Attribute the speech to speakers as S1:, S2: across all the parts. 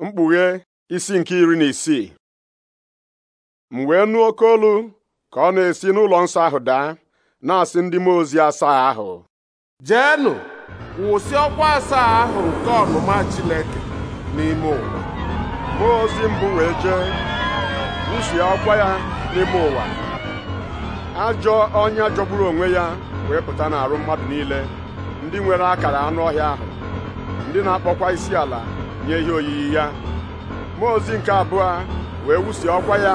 S1: mkpughe isi nke iri na isii m wee nụ oke olu ka ọ na-esi n'ụlọ nsọ ahụ daa na-asị ndị mmụọ ozi asaa ahụ jeenụ wụsị ọkwa asaa ahụ nke ọnụma Chineke n'ime ụwa mmụọ ozi mbụ wee jee wụsị ọkwa ya n'ime ụwa ajọ ọnya jọgburu onwe ya wee pụta n'arụ mmadụ niile ndị nwere akara anụ ọhịa ahụ ndị na-akpọkwa isi ala nye ihe oyiyi ya mmụọ ozi nke abụọ wee wusi ọkwa ya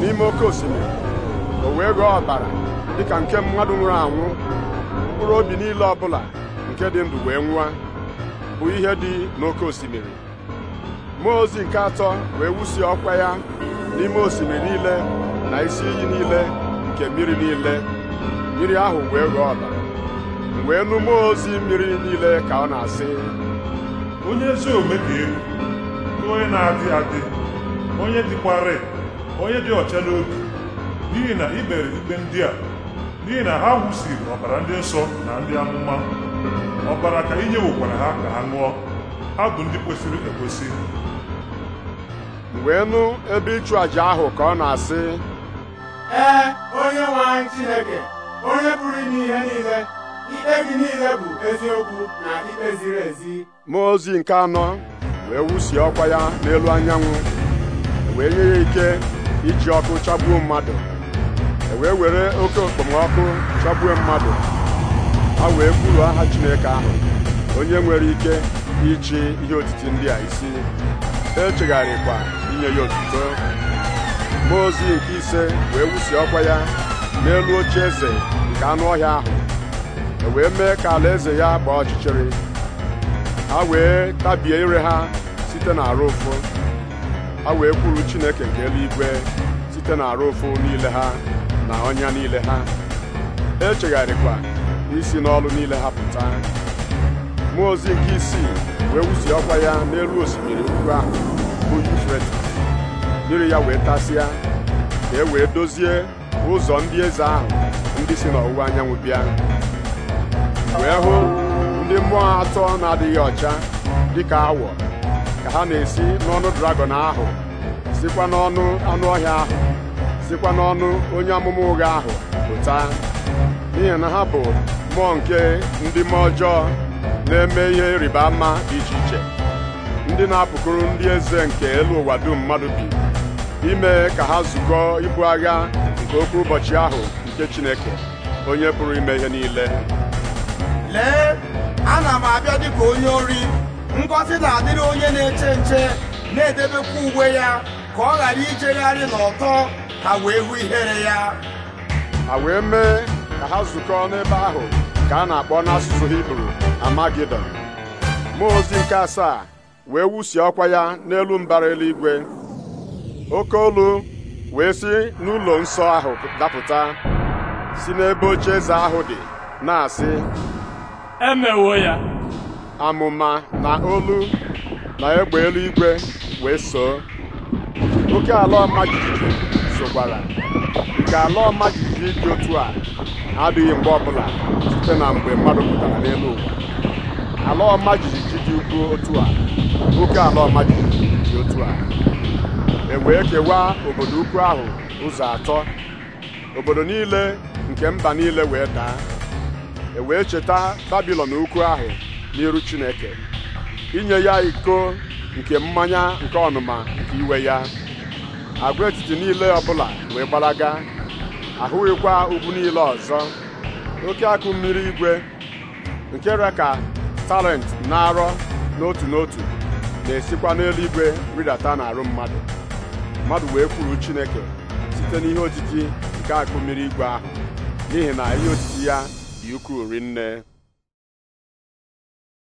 S1: n'ime oke osimiri o wee ghọọ ọbara dịka nke mmadụ nwụrụ anwụ mkpụrụ obi niile ọbụla nke dị ndụ wee nwụa bụ ihe dị n'oke osimiri mmụọ ozi nke atọ wee wusi ọkwa ya n'ime osimiri niile na isi iyi niile nke mmiri niile mmiri ahụ wee ghọọ ọbara wee nụ mmụọ ozi mmiri niile ka ọ na-asị onye ezi omume dị egwu onye na-adị adị onye dịkwarị, onye dị ọcha n'obi n'ihi na i ikpe ndị a n'ihi na ha wụsiri ọbara ndị nsọ na ndị amụma ọbara ka inye nwekwara ha ka ha ṅụọ ha bụ ndị kwesịrị ekwesị wee nụ ebe ịchụ àjà ahụ ka ọ na-asị ee onye nwe anyị Chineke onye pụrụ ime ihe niile ikpe gị niile bụ eziokwu na ikpe ziri ezi mmụọ ozi nke anọ wee wusie ọkwa ya n'elu anyanwụ wee nye ya ike iji ọkụ chagbuo mmadụ e wee were oke okpomọkụ chagbuo mmadụ ha wee kwuru aha Chineke ahụ onye nwere ike ịchị ihe otiti ndị a isi echegharịkwa inye ya otuto mmụọ ozi nke ise wee wusi ọkwa ya n'elu oche eze nke anụ ọhịa ahụ e wee mee ka ala eze ya gbaa ọchịchịrị ha wee tabie ire ha site arụ ụfụ ha wee kwuru Chineke nke eluigwe site arụ ụfụ niile ha na ọnya niile ha echegharịkwa isi n'ọlụ niile ha pụta mmụọ ozi nke isii wee wuzie ọkwa ya n'elu osimiri ukwu ahụ bụ Yufretis mmiri ya wee tasịa ka e wee dozie ụzọ ndị eze ahụ ndị si n'ọwụwa anyanwụ bịa wee hụ ndị mmụọ atọ na-adịghị ọcha dịka awọ ka ha na-esi n'ọnụ dragọn ahụ sikwa n'ọnụ anụ ọhịa ahụ sikwa n'ọnụ onye amụma ụgha ahụ pụta n'ihi na ha bụ mmụọ nke ndị mmụọ ọjọọ na-eme ihe rịba ama dị iche iche ndị na-apụkụrụ ndị eze nke elu ụwa dum mmadụ bi ime ka ha zukọọ ibu agha nke okwu ụbọchị ahụ nke Chineke onye pụrụ ime ihe niile m abịa dịka onye ori ngọzi na-adịrị onye na-eche nche na-edebekwa uwe ya ka ọ ghara ijegharị n'ọtọ ha wee hụ ihere ya ha wee mee ka ha zukọọ n'ebe ahụ ka a na-akpọ n'asụsụ Hibru Amagidon mmụọ ozi nke asaa wee wusie ọkwa ya n'elu mbara eluigwe oke olu wee si n'ụlọ nsọ ahụ dapụta si n'ebe oche eze ahụ dị na-asị emewo ya amụma na olu na egbe eluigwe wee soo oke ala ọma jijiji sokwara nke ala ọma jijiji dị otu a adịghị mgbe ọbụla site na mgbe mmadụ pụtara n'elu ụwa ala ọma jijiji dị ukwu otu a oke ala ọma jijiji dị otu a e wee kewaa obodo ukwu ahụ ụzọ atọ obodo niile nke mba niile wee daa ewee cheta babilon ukwu ahụ n'iru chineke inye ya iko nke mmanya nke ọnụma nke iwe ya agwaetiti niile ọbụla wee gbalaga ahụghịkwa ugwu niile ọzọ oke akụ mmiri igwe nke re ka talent na-arọ n'otu n'otu na-esikwa n'eluigwe ridata n'arụ mmadụ mmadụ wee kwuru chineke site n'ihe otiti nke akụ mmiri igwe ahụ n'ihi na ihe otiti ya dị ukwuu